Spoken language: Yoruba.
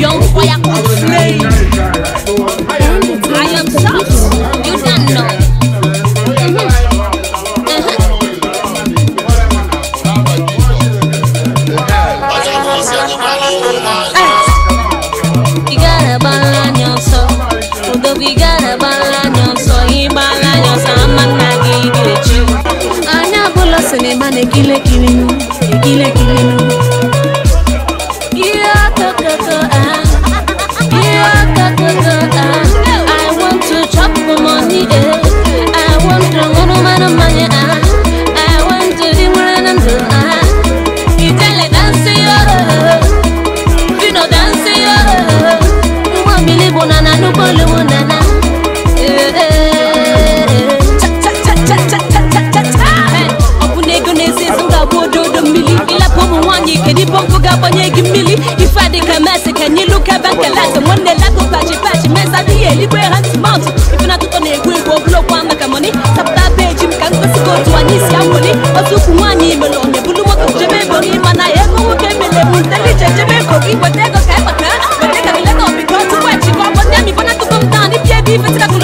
young fire could slay. I am soft, you don't know. Mm -hmm. Mm -hmm. Hey. You gotta balance yourself. You gotta balance yourself. You balance yourself. I'm not gonna give you. I'm not gonna give you. I'm not gonna give you. Can you look back and laugh? And one day laugh go patchy patchy. Men say the liberal mouth. If not to ne gwe go blow kwa maka money. Tap that page him can go to go to any siamoni. Otu kumani melo ne bulu mo kuje me boni mana ye ko wo ke mele mun teli je je me ko ki bote ko ka ba ka. Bote ka mele ko bi ko tu kwa chi ko bote mi bona tu kom tani pie